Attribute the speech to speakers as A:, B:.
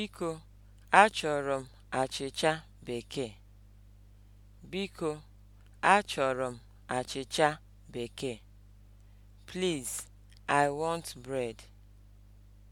A: Biko, achọrọ m achịcha bekee. Biko, achọrọ m achịcha bekee. Please, I want bread.